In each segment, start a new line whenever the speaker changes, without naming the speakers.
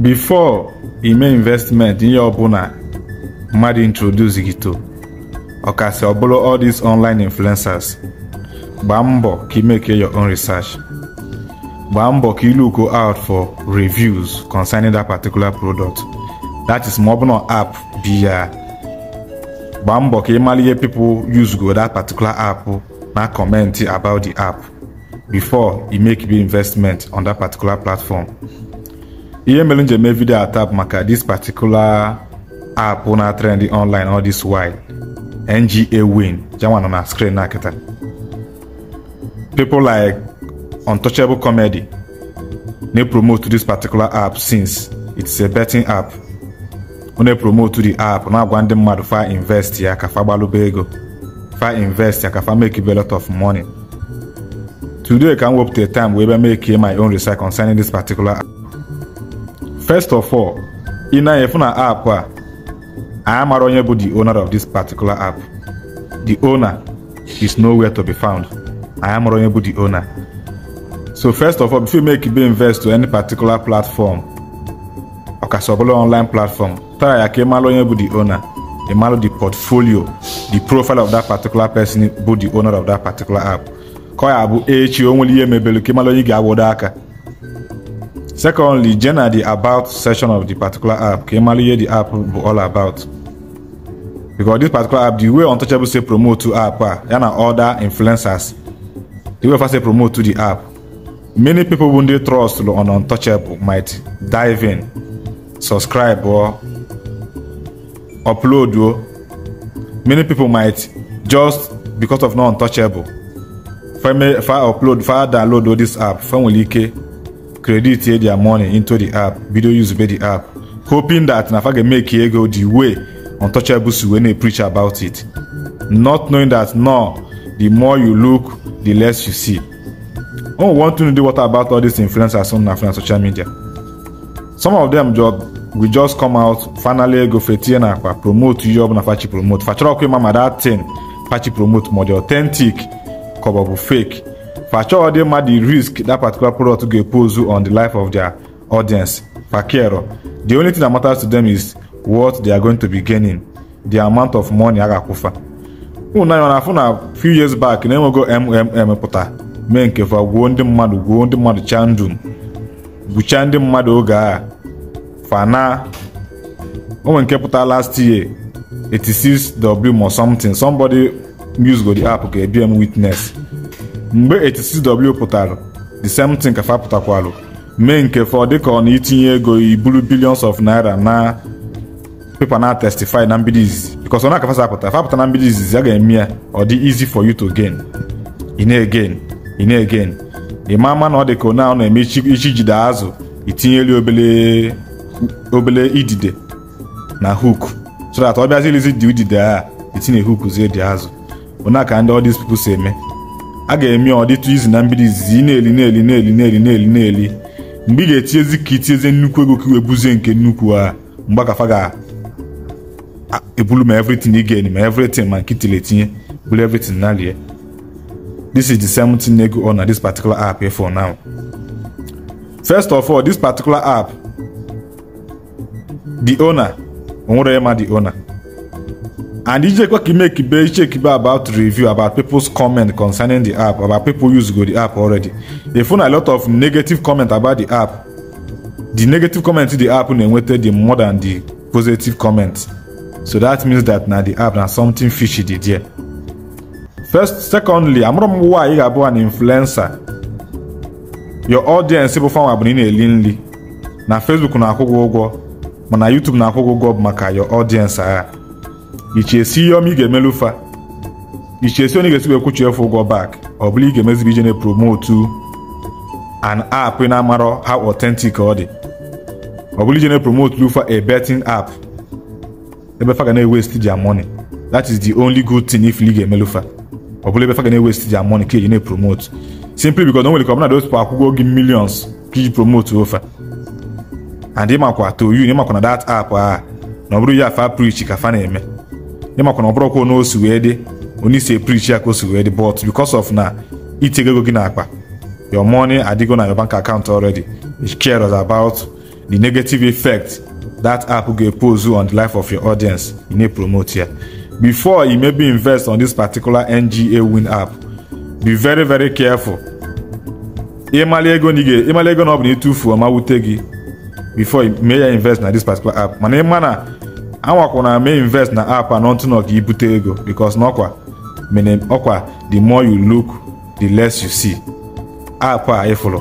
before make investment ihe ọbụla mmadụ introduce gị to ọkasị ọbụrụ all these online influencers gbaa mbọ ka ị make your own research gbaa mbọ ka ị look out for reviews concerning that particular product that is ma ọ bụ na app bi ya gbaa mbọ ka ị mara ihe people use go that particular app na comment about the app before you make big investment on that particular platform ihe mere njem mee vidio atap maka this particular app na trend online all this while nga win janwa nọ na screen na kịta people like untouchable comedy na promote this particular app since it's a betting app ọ na-promote the app na-agwa ndị mmadụ fa invest ya ka fa gbalụba ego fa invest ya ka fa make a lot of money today ka m wepụta time wee bịa make my own research concerning this particular app First of all, in na-efu na app a anyị mara onye bụ the owner of this particular app. The owner is nowhere to be found. Anyị mara onye bụ the owner. So first of all, before you make you invest to any particular platform, ọkasị ọbụla online platform, tara ya ka ị mara onye bụ the owner. Ị the portfolio, the profile of that particular person bụ the owner of that particular app. Ka ọ ya bụ echi o nwere ihe mebere ka ị mara onye ga-awodo aka. Secondly, generally the about section of the particular app. Kí ẹ hear the app all about. Because this particular app, the way Untouchable say promote to app, ah, ya na other influencers, the way first say promote to the app, many people wey trust on Untouchable might dive in, subscribe or upload oh. Many people might just because of no Untouchable fa upload fa download this app fa nwere ike credit their money into the app Video use be the app hoping that na ga make ego the way untouchable. untouchables wey na preach about it not knowing that no the more you look the less you see oh one thing to do what about all these influencers on na social media some of them just we just come out finally go fetie na akwa promote ihe na fachi promote fachọrọ ọkwa ịma ma dat tin fachi promote ma ọ authentic ka ọ fake per sure they mad the risk that particular product go pose on the life of their audience per care the only thing that matters to them is what they are going to be gaining the amount of money agakufa unu anya na afụ a few years back na go mmm pụta mee nke fa gwuo ndị mmadụ gwuo ndị mmadụ chaa ndụ gwuchaa ndị mmadụ oge a fana onwe nke pụta last year 86 w or something somebody use go the app okay, ebie m witness mgbe 86w pụtara the same thing ka fa pụtakwalụ mee nke fọ dịka ọ na-itinye ego iburu billions of naira na pepa na testify na mbido izizi because ọ na-akafasa apụta fapụta na mbido izizi a ga-eme ya ọ dị easy for you to gain ine again ine again ịma ama na ọ dị ka onye ahụ na-eme ichi jide azụ itinyeli obele obele idide na hook so that ọ bịazilizi dị udide a itinye hook zie dị azụ onye aka ndị all these people si eme a ga-eme ọdịtụ izu na mbido izizi ị na-eli na-eli na-eli na-eli na-eli na-eli mgbe ị ga-etinyezi ka itinyezie nnukwu ego ka iwebuzie nke nnukwu a mgbe akafa ga-ebulu ma evritin ị ga-eni ma evritin ma nke itile etinye bulu evritin na lie this is the same thing na ego ọna this particular app for now first of all this particular app the owner onwere ya ma the owner And Ijekwe make check about review about people's comment concerning the app, about people use go the app already. They found a lot of negative comment about the app. The negative comment to the app enwete the more than the positive comments. So that means that now the app na something fishy dey there. First, secondly, I'm m why you are an influencer. Your audience people fanwa bụ na ị na Facebook na-akwụ gị ụgwọ, mana YouTube na-akwụ gị ụgwọ maka your audience agha iche esi ihe ọma ị ga-emelu fa iche esi onye ga-esi ekwuchi efu ụgwọ back ọ bụla ị ga-emezibe ije na-epromotu an app ị na-amarọ how authentic ọ dị ọ bụla ije na-epromotu lufa a betting app ebe fa ga na-ewest their money that is the only good thing if league emelu fa ọ bụla ebe fa ga na-ewest their money ka eji na-epromote simply because o nwere ka ọbụna those people akwụgo gị millions ka iji promote ofa and ịmakwa to you ịmakwa na that app a na ọ bụrụ ya fa preach ka fa na-eme ne ma kwana ọbụrụ kwa onye osi wee dị onye isi eprichi ya ka osi wee dị but because of na itinye ego gị n'akpa your money adigo na your bank account already it cares about the negative effect that app ga-epose on the life of your audience you need promote here. before you maybe invest on this particular nga win app be very very careful ịmali ego na ịmali ego na ọ bụ na ịtụfuo ma wute gị before you ya invest na this particular app mana ịma na anwakwana mee invest na app a n'ọtụnọ ka ibute ego because n'ọkwa mene ọkwa the more you look the less you see app a ịfụrụ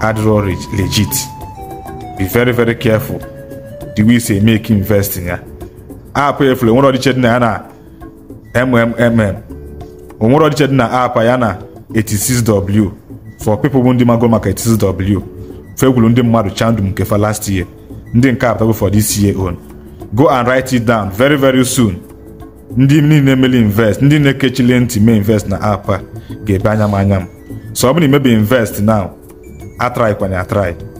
adịrọ legit be very very careful the way say make investing ya app a efụrụ onwere ọdịche dị na ya na mmmm onwere ọdịche dị na app ya na 86w for people bụ ndị mago maka 86w fekwuru ndị mmadụ chandum nke fa last year ndị nke a for this year on go and write it down very very soon ndị niile emeli invest ndị na-ekechile ntị mee invest na apa a ga-ebe anya m anya m so ọ bụrụ na imebe invest now atry kwanye atry